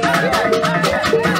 Thank you.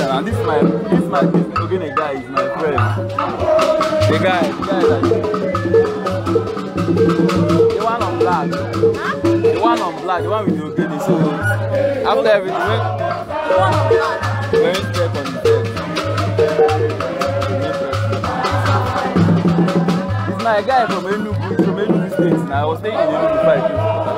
And this my this my this Ogene guy is my friend. The guy, the guy that the one on black. The one on black, the one with the Ogene. So after everything, my guy from Enugu, from Enugu State. Now I was staying in Enugu five years.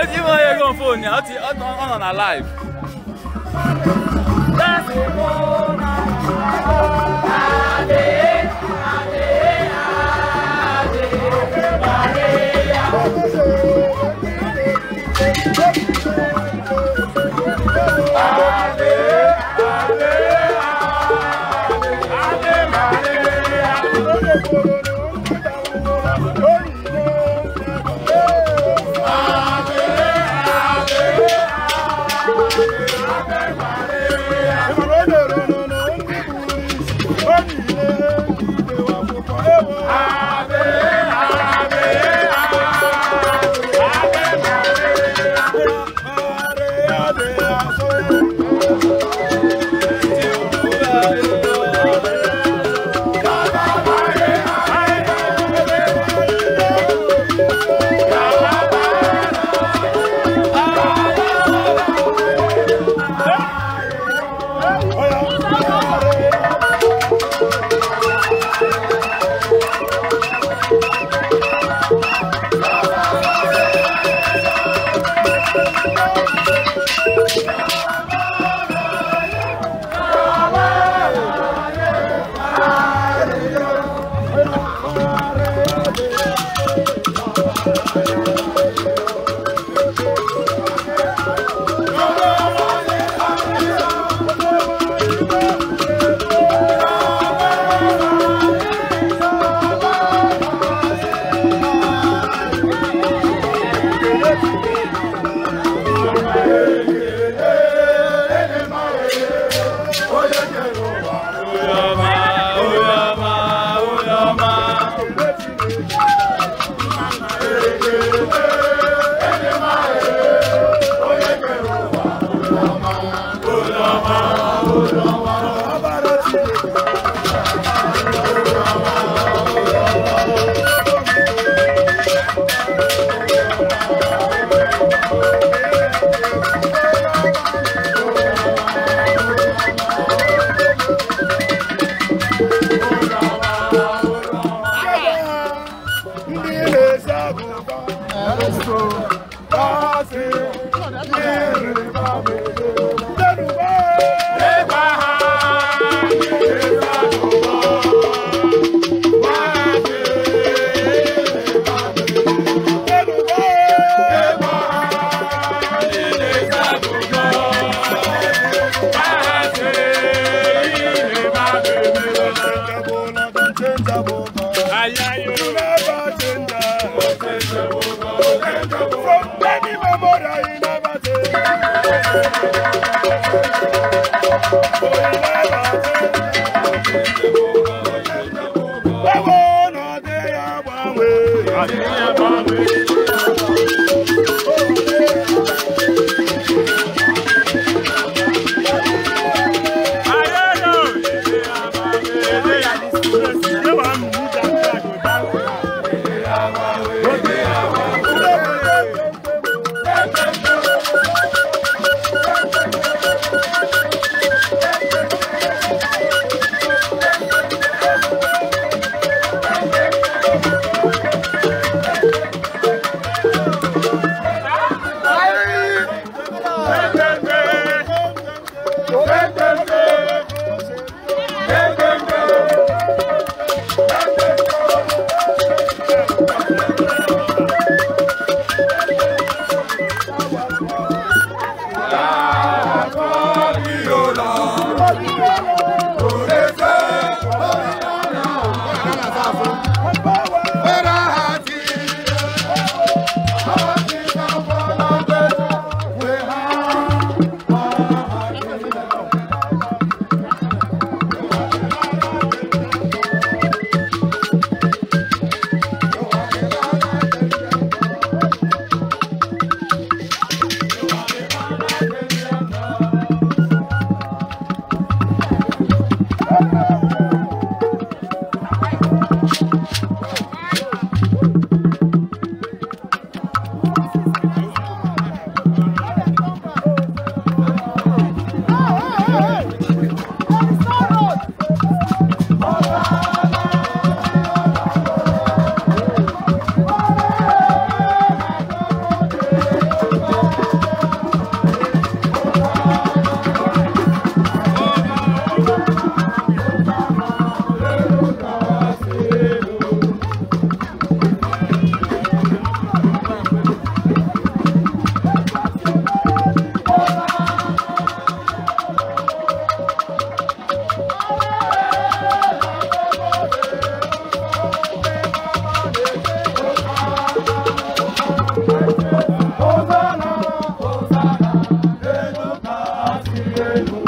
Every one here go phone ya. Oti on on on live. That's Ẹ̀rọ sọ bá ṣe ní ìrìnbá mi. Foi Thank you. you.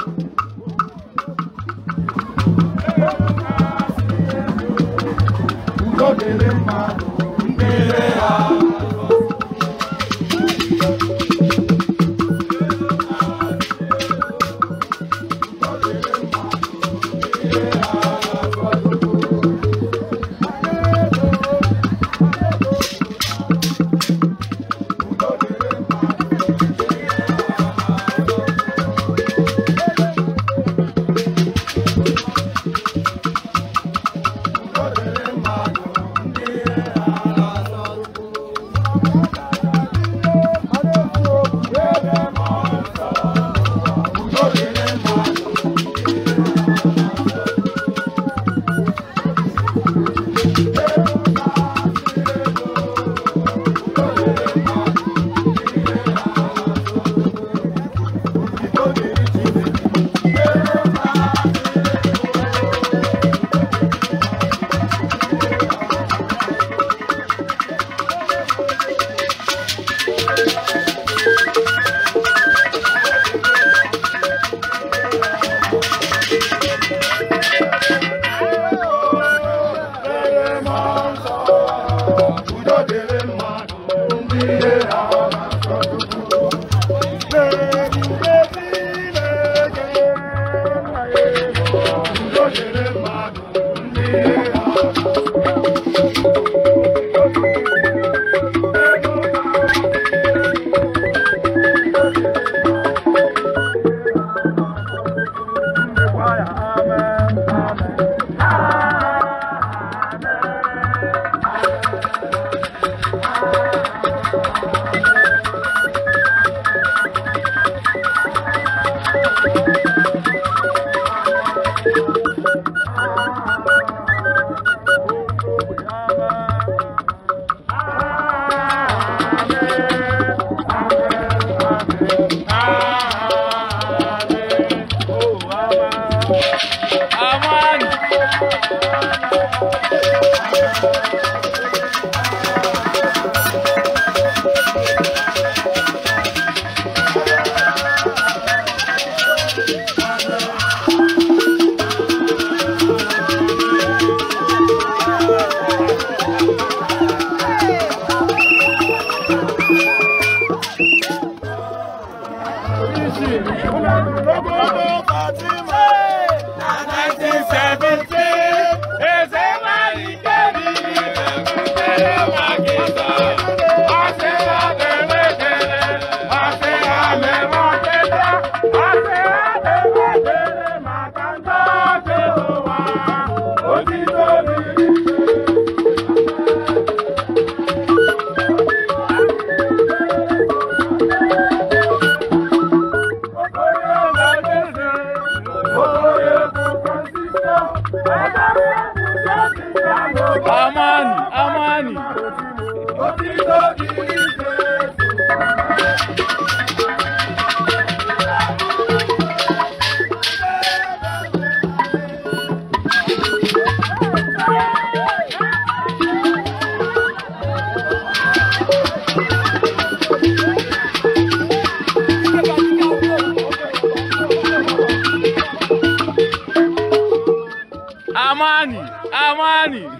jamani.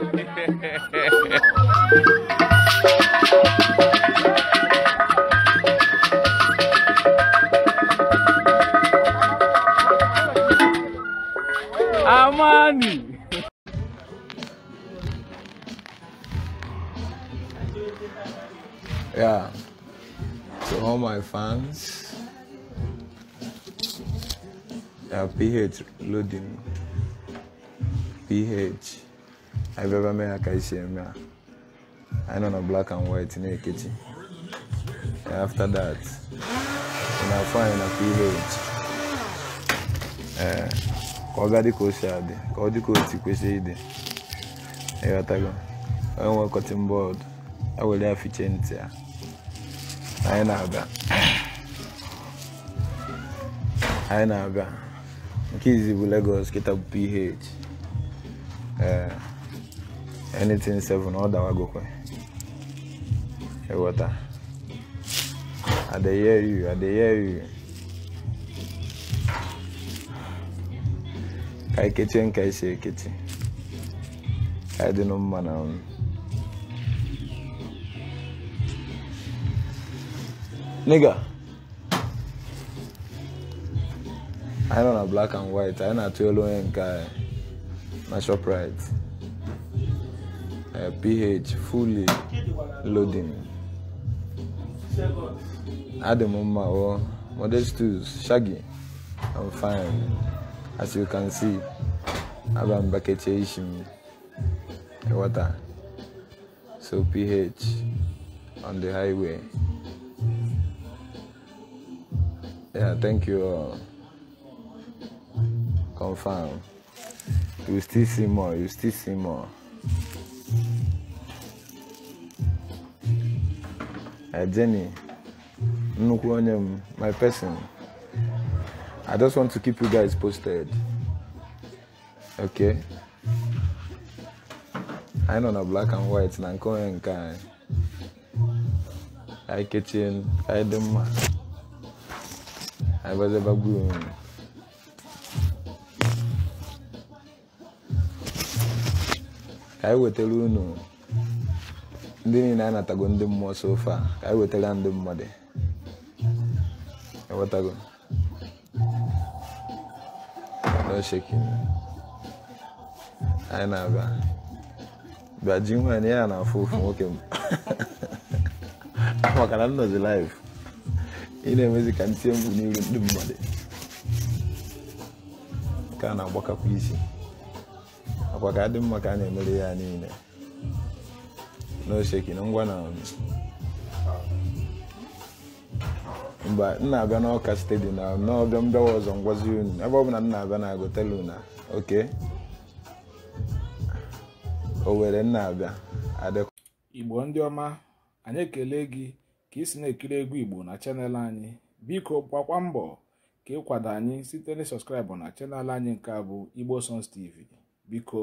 Amani. Yeah. To all my fans, uh, PH loading. PH. anyị bịaba mee ya ka isi eme ya anyị nọ na black and white na-ekechi after that na-afọ anyị na ph ee eh, ka ọ ga dị ka ka ọ dị ka o si kwesịrị ịdị ịghọtago onye nwe kọtin bọọdụ ewere ya fiche ntị ya anyị na-abịa anyị na-abịa nke izi bụ Lagos kịta bụ ph ee eh, anything seven all that go kwe e water i dey hear you i dey hear you ka ikechi nka isi ekechi ka ịdị nụ mma na m nigga I don't know black and white anyị know to yellow and nke My shop right. Eh, pH fully loading. At the oh, modest tools, shaggy, I'm fine. As you can see, I'm back at water. So pH on the highway. Yeah, thank you all. Confirm. You still see more, you still see more. Jenny, nnukwu onye my person. I just want to keep you guys posted. Okay? i nọ na black and white na nke onye nke anyị anyị kechie anyị dị mma anyị gbazebagbuo onwe anyị wetara unu ndị niile anatago ndị mmụọ sofa ka anyị e wetara ndị mmadụ ewetago n'oshekin anyị na-abịa bịa ji nwaanyị ya na afọ ofu nwoke m maka na nnọzi live ị na-emezi ka m tie mkpu n'iru ndị mmadụ ka a na-agbakapụ isi akwa ka dị mma ka a na-emere ya niile n'ose na ngwa na mba m na-abịa n'ọka stadium na n'ọbịa mbịawa ọzọ ngwazi unu ebe ọ bụla m na-abịa na agotelu na oke o m na-abịa adịkwa igbo ndị ọma anyị ekele gị ka ị si na-ekiri egwu igbo na chanel anyị biko gbakwa mbọ ka kwado anyị site na sọskraịbụ na chanel anyị nke a bụ igbo sons tv biko